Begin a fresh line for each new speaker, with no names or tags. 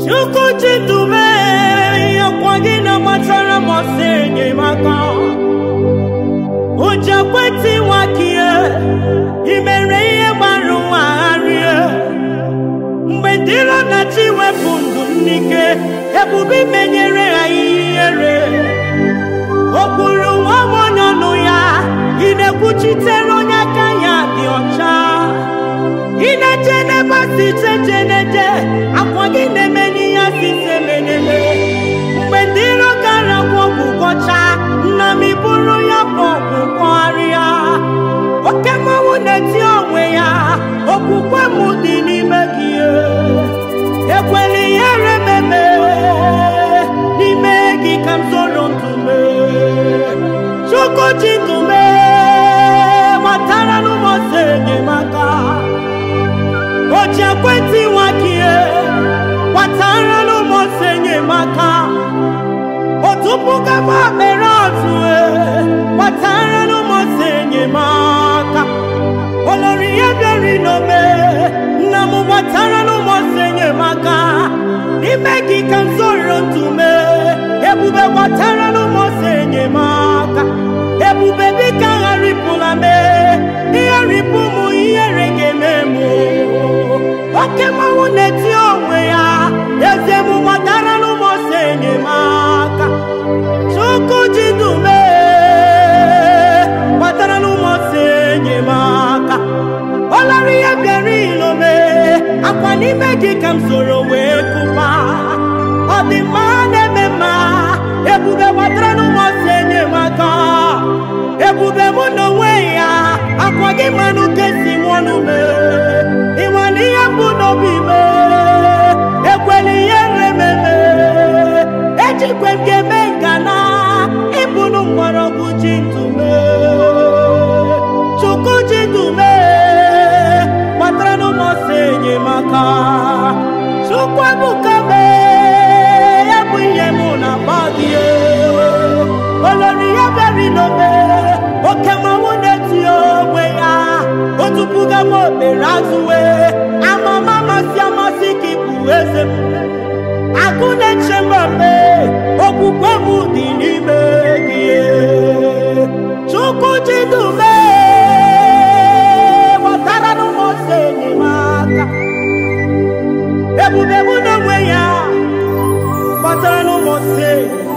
Chukwu chidube ọkwa gị na-agbatara m ọsọ enyemaka ụjọ ekwentị nwakie imere ihe gbara ụwa gharịa mgbe dịrọ na wepụ ndụ m n'ike ebube menyere ha ihere iche iche na akwa gị na-eme n'ihe asị ise meneme mgbe ndị ịrọ gara kwụ ọgwụ kọchaa nna m bụrụ ya bụ ọgwụ kọgharịa oke mmanwụ na-eti onwe ya okwukwe m dị n'ime gị ekwela gaba mere gbatara n'ụmụ n'ụmụsị enyemaka olori ihe bịari n'ome nna m gbatara n'ụmụsị enyemaka n'ime gị ka m zoro ntume ebube gbatara n'ụmụsị enyemaka ebube dịka gharịpụla mee ihe ripụ mụ ihere ga-eme mụ oke na onwe ya eze n'ime gị ka m soro wee dị mma ebuka mee ihe m na mmadụ olori ya beri oke mmanwụ na-eti onwe ya otupuga m okpere azụwe amama masị amasị ka ịbụ eze m akụ na-eche mgbe okwukwe m dị n'ime sei.